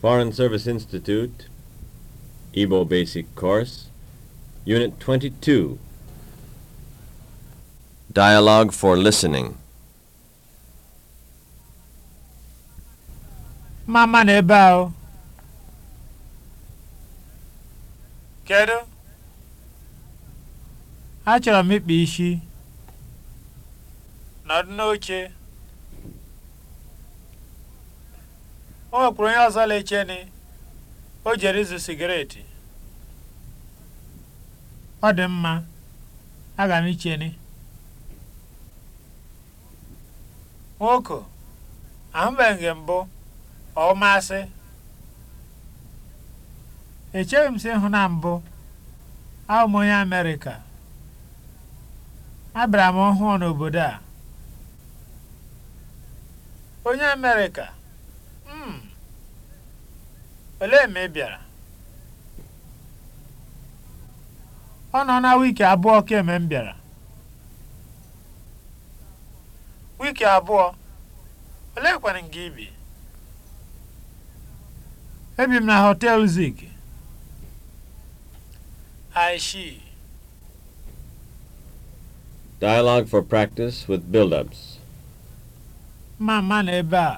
Foreign Service Institute, Igbo Basic Course, Unit 22. Dialogue for Listening. Mama n'ebe ahụ. Kedu? Achọrọ m ịkpa isi. Nọdụ n'oche. o nwekwuru onye ọzọ la-echeni o jere izu sigareti ọ dị mma aga m icheni nwoke ahụbeghị mbụ ọ masị echeghị m si hụ na mbụ ahụ onye amerịka abịara m ọhụụ n'obodo a onye amerịka Olee mgbe ị bịara? Ọ nọ na wiki abụọ kemgbe m bịara. Wiki abụọ? Oleekwanụ nke ị bi? Ebi m na họtel Zik. I Dialogue for practice with build-ups. Mma mma na ebe a.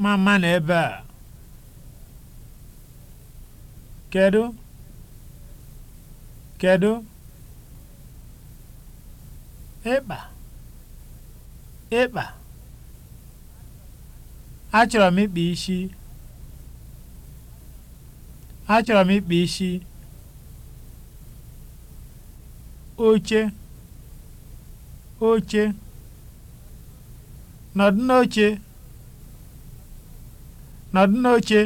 mama na ebe a kedu kedu ịkpa ịkpa achọrọ m ịkpa isi achọrọ m ịkpa isi oche oche nọdụ n'oche nọdụ n'oche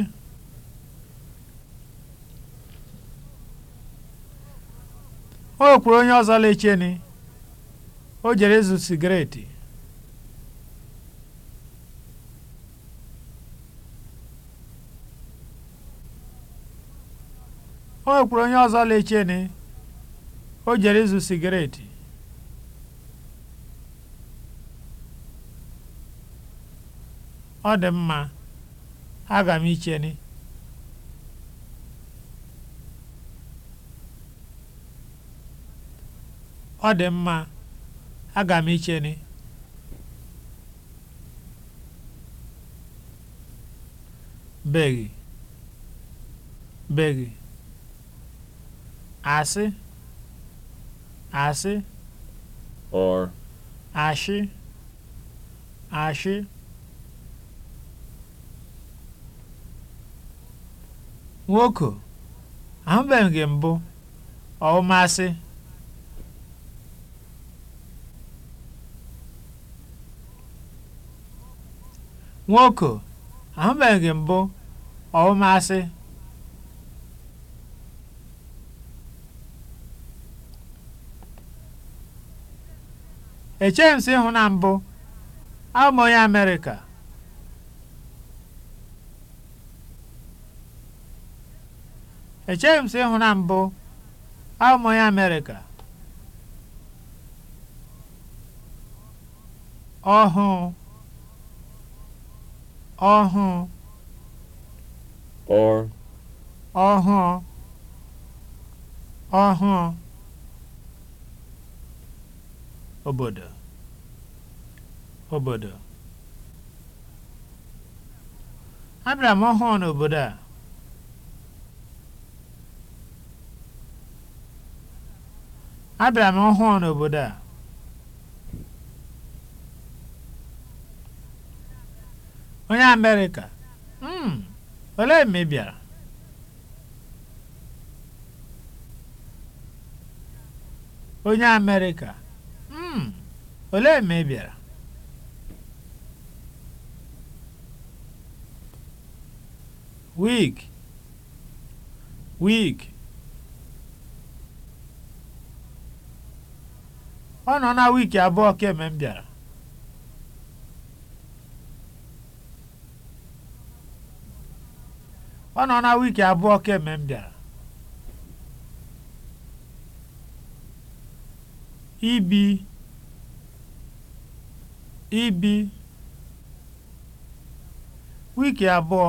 o kwuru onye ọzọ ni o jere ịzụ sigaret o kwuru onye ọzọ ni o jere ịzụ sigaret ọ dị mma aga m icheni ọ dị mma aga m icheni beghị beghi asị asị or ashị ashị nwoko ahụbeghị mbụ ọwụmasị. nwoko ahụbeghị gị mbụ ịhụ na mbụ abụ onye Amerịka Echeghị m sị ịhụ na mbụ abụ m Amerịka ọhụụ ọhụụ ọhụụ ọhụụ obodo obodo abịara m ọhụụ n'obodo a abịara m ọhụụ n'obodo a onye amerịka mm olee mgbe bịara onye amerịka mm olee mgbe bịara wig wig ọ nọ na wiiki abụọ kemgbe m bịara ọ nọ na wiiki abụọ kemgbe m bịara ibi ibi wiiki abụọ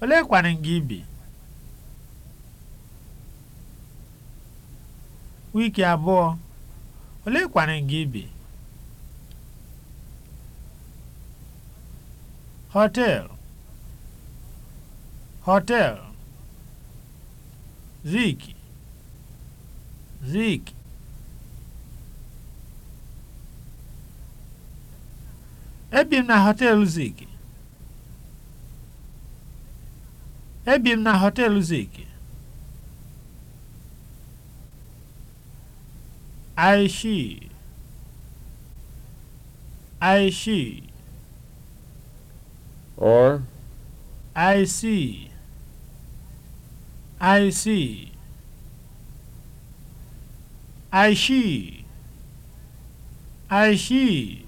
olee kwanị gị ibi wiiki abụọ olee kwanụ gị bi họteelụ họteelụ zik zik ebi m na họteelụ zik ebi m na họteelụ zik I she I she or I see I see I she I she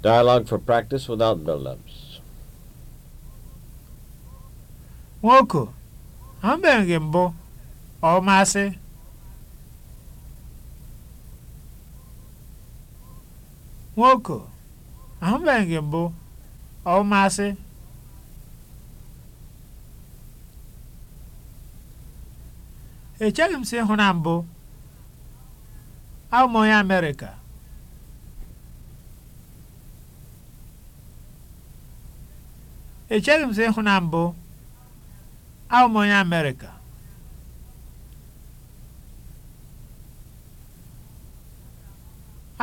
Dialogue for practice without build-ups. Nwoke, abịaghị mbụ ọmasị nwoke ahụbeghị mbụ echeghị m si ịhụ na mbụ abụ m onye Amerịka echeghị m ịhụ na mbụ m onye Amerịka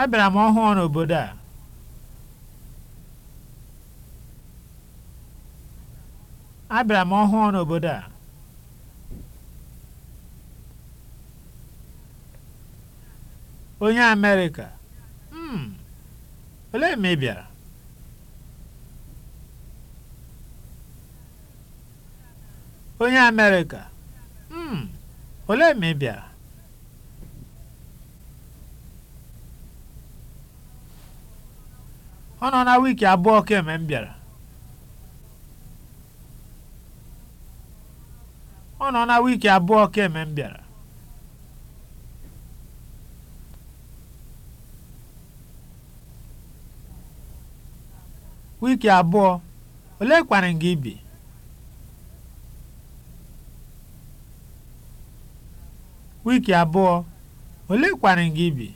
abịara m ọhụụ n'obodo a abịara m ọhụụ n'obodo a onye Amerịka mm olee mgbe ị bịara onye Amerịka mm olee mgbe ị bịara ọ nọ na wiiki abụọ kemgbe m bịara ọ nọ na wiiki abụọ kemgbe m bịara wiiki abụọ ole kwarị gị bi wiiki abụọ ole kwarị gị bi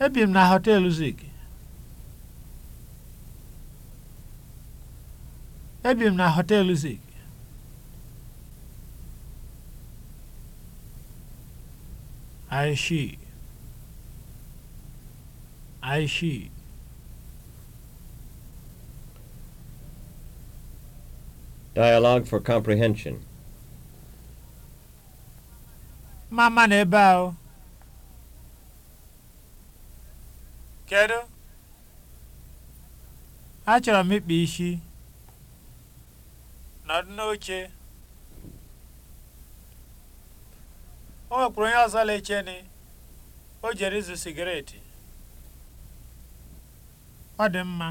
Ebi m na hotel Zik. Ebi na Hotel Zik. Aishi. Aishi. Dialogue for comprehension. Mama na ebe ahụ. Kedu? Achọrọ m ịkpa isi. Nọdụ n'oche. O nwekwuru onye ọzọ leche ni. O jere ịzụ sigaret. Ọ dị mma.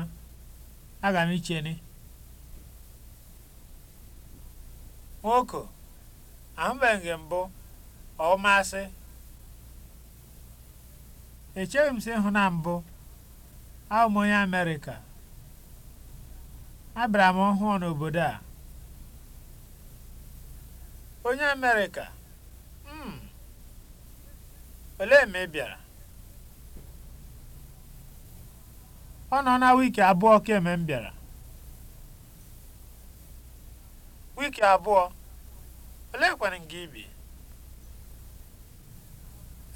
Aga m icheni. Nwoke, ahụbeghị m mbụ, ọ masị. echeghị m si ịhụ na mbụ abụ m onye Amerịka abịara m ọhụụ n'obodo a onye Amerịka hmm, olee ma ị bịara ọ nọ na wiki abụọ kemgbe m bịara wiki abụọ oleekwanụ nke ibi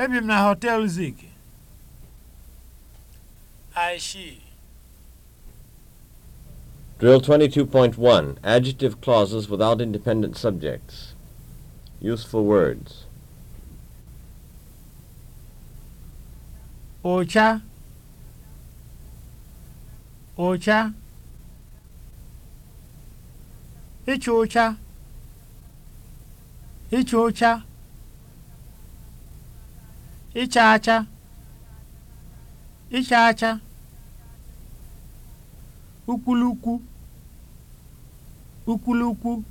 ebi m na họtel Zik I she. Drill 22.1 Adjective clauses without independent subjects. Useful words. Ocha. Ocha. icho ocha. icho ocha. Icha acha. ịcha acha ukwulukwu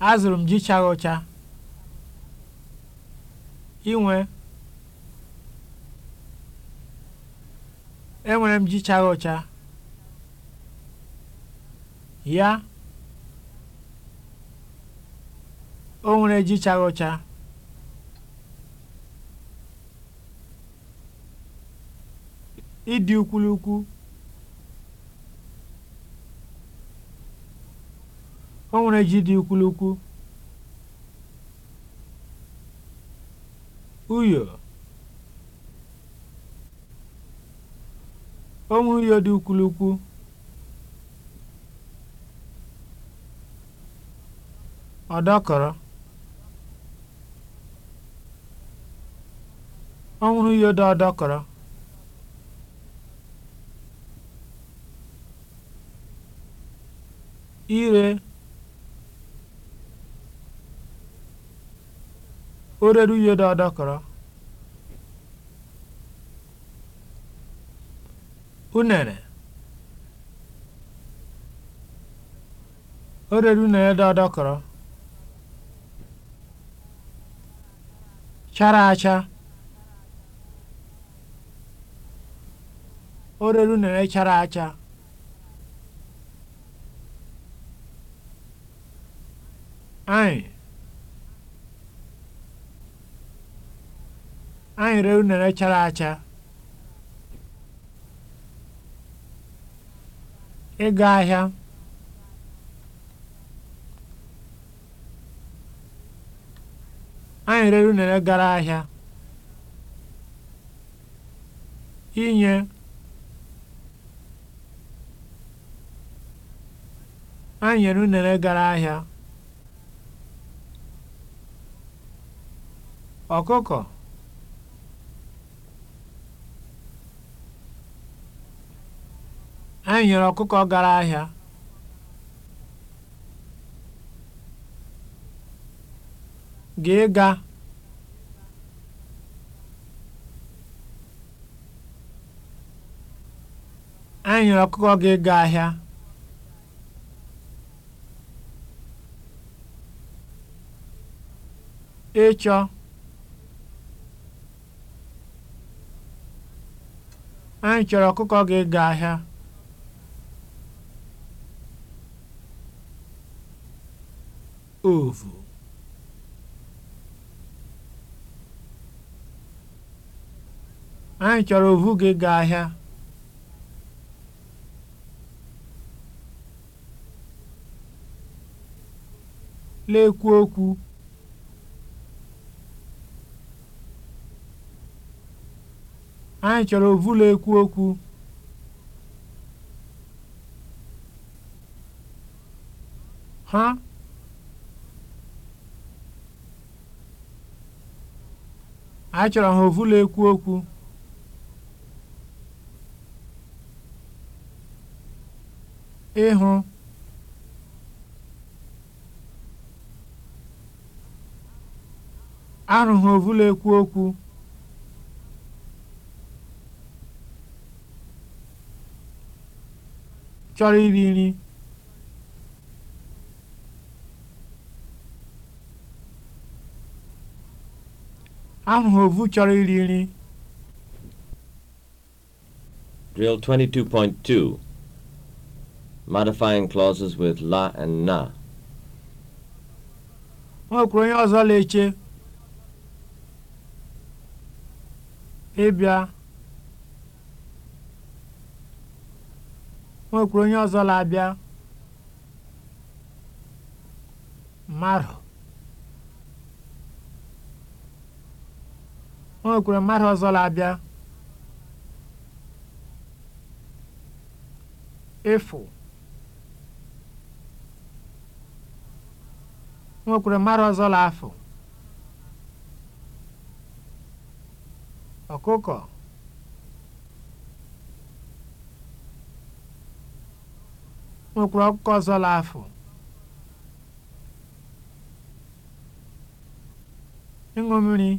azụrụ m ji chara inwe enwere m ji chara ya o nwere ji chara ịdị ukwulukwu o nwere ji dị ukwulukwu uyo o nwere uyo dị ukwulukwu ọdọkọrọ ọ nwụrụ dị ọdọkọrọ ire ó rérú iye dáadáa kàrá unere ó rérú dáadáa chara acha ó rérú unere chara acha Anyị. Anyị ree unere chara acha. Ịga ahịa. Anyị rere unere gara ahịa. Inye. Anyị nyere unere gara ahịa. ọkụkọ anyị e nyere ọkụkọ gara ahịa gị ga anyị e nyere ọkụkọ gị ga ahịa ịchọ Anyị chọrọ ọkụkọ ga ahịa. ovu anyị chọrọ ovu ga-ego ahịa lekwuo okwu anyị chọrọ ovulu ekwu okwu ha anyị chọrọ ha ovulu ekwu okwu ịhụ ha ovulu ekwu okwu chọrọ iri nri ahụhụ ovu chọrọ iri nri Drill 22.2 Modifying clauses with onye ọzọ la eche ịbịa kwuru onye ọzọ na-abịa mmadụ o nwekwuru mmadụ ọzọ na-abịa efo o nwekwuru mmadụ ọzọ na-afụ ọkụkọ nwekwara ọkụkọ ọzọ laafụ ịṅụ mmiri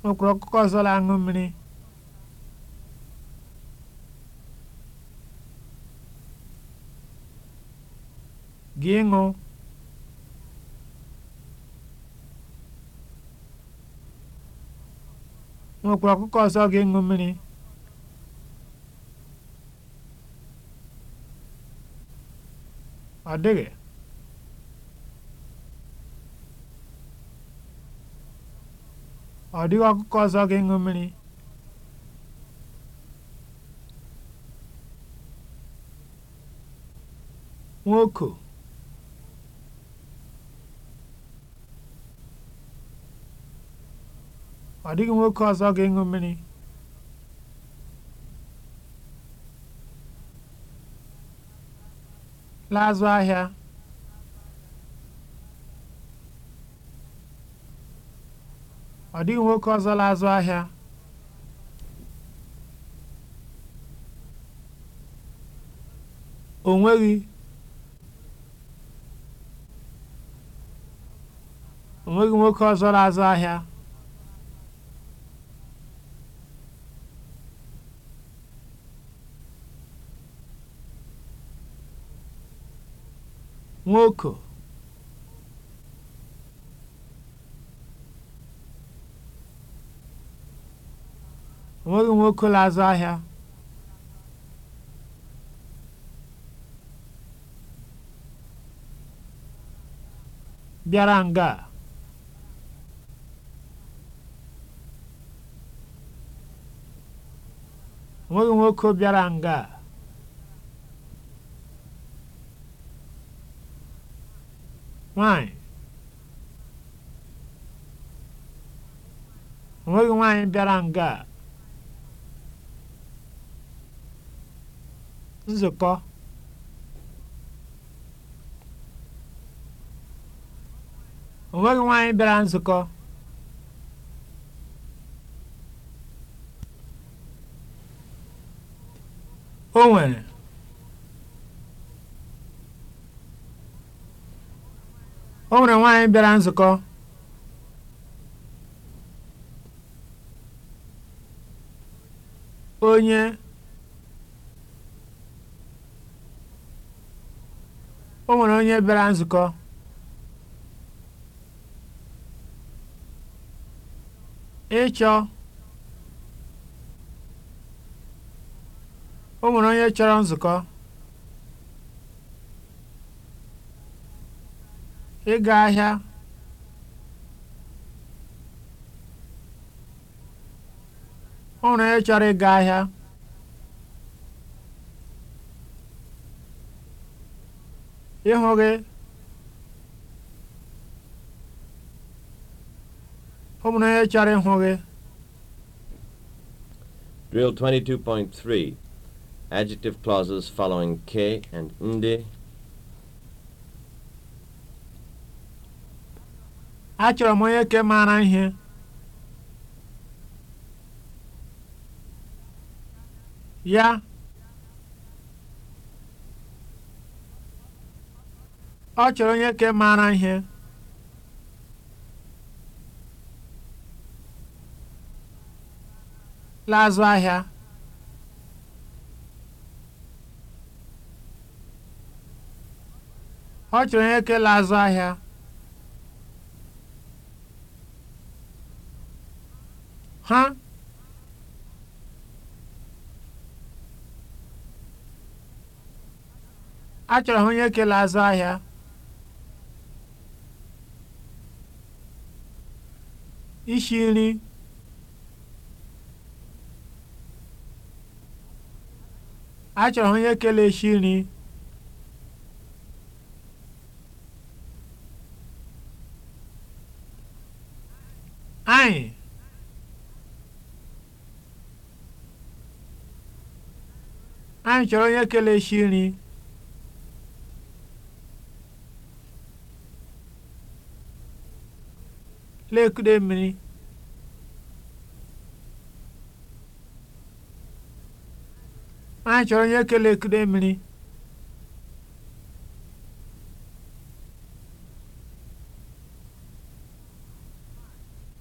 nwekwara ọkụkọ ọzọ la-aṅụ mmiri gị ịṅụ nwekwara ọkụkọ ọzọ ga-eṅụ mmiri ọ dịghị ọ dịghị ọkụkọ ọzọ ga-eṅụ mmiri nwoke ọ dịghị nwoke ọzọ ga eṅụ mmiri la'azụ ahịa nwoke ọzọ o nweghị nwoke ọzọ la'azụ ahịa nwoke onweghị nwoke na-azụ ahịa bịara nga a onweghị nwoke bịara nga a nwanyị onweghị nwaanyị bịara nga a nzukọ onweghị nwaanyị bịara nzukọ o nwere o nwere nwaanyị bịara nzukọ onye o nwere onye bịara nzukọ ịchọ o nwere onye chọrọ nzukọ ịga ahịa ọ hụrụ onye chọrọ ịga ahịa ịhụ gị ọ hụrụ onye chọrọ ịhụ gị Drill 22.3 Adjective clauses following k and nde Achọrọ m onye ke mara ihe. Ya. Ọ chọrọ onye ke mara ihe. laazụ ahịa. Ọ chọrọ onye ke laazụ ahịa. ha achọrọ ha onye kele azụ ahịa ishi nri achọrọ ha onye kele ishi nri anyị anyị chọrọ onye kelechi nri lekude mmiri anyị chọrọ onye kele ekude mmiri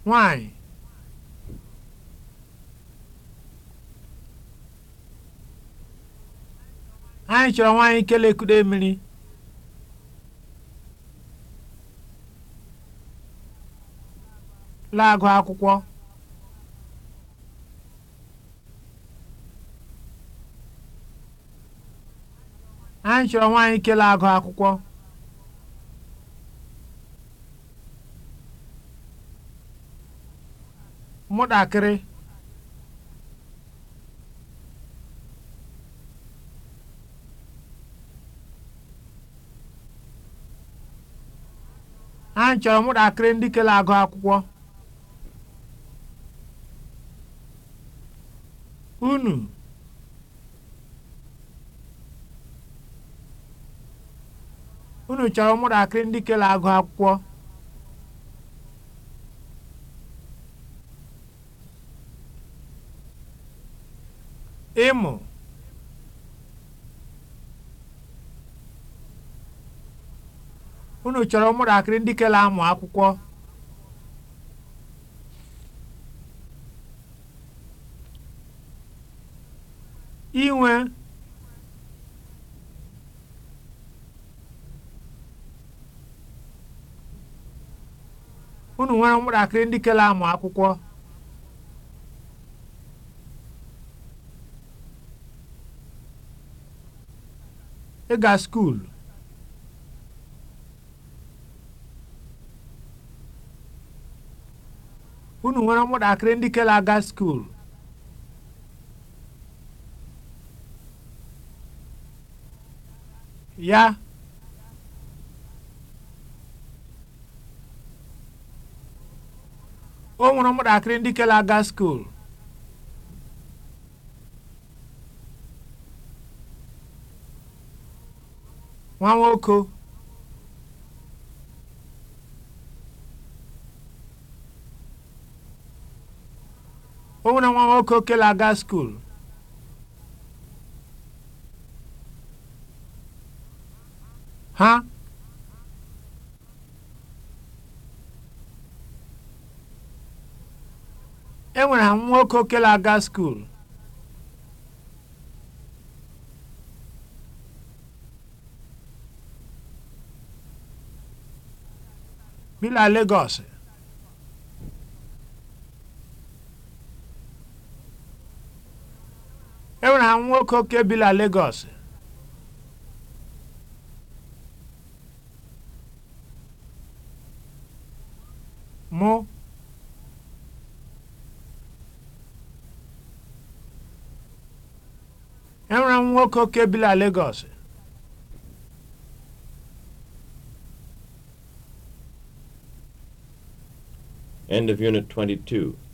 nwanyị anyị chọrọ nwaanyị kelekude mmiri laagụ akwụkwọ anyị chọrọ nwaanyị kele agụ akwụkwọ mụtakịrị anyị chọrọ ụmụntakịrị ndị kele agụ akwụkwọ unu unu chọrọ ụmụntakịrị ndị kele agụ akwụkwọ ịmụ unu chọrọ ụmụntakịrị ndị kele amụ akwụkwọ inwe unu nwere ụmụntakịrị ndị kele amụ akwụkwọ ịga skuulu nwere ụmụntakịrị ndị kere aga skuulu ya o nwere ụmụntakịrị ndị kere aga skuulu nwa nwoke na nwa nwoke okele aga skul ha enwere ha nwoke okele aga skul bi na nwa nwoke oke bi na Lagos mụ enwere m nwoke oke bi na Lagos End of Unit 22.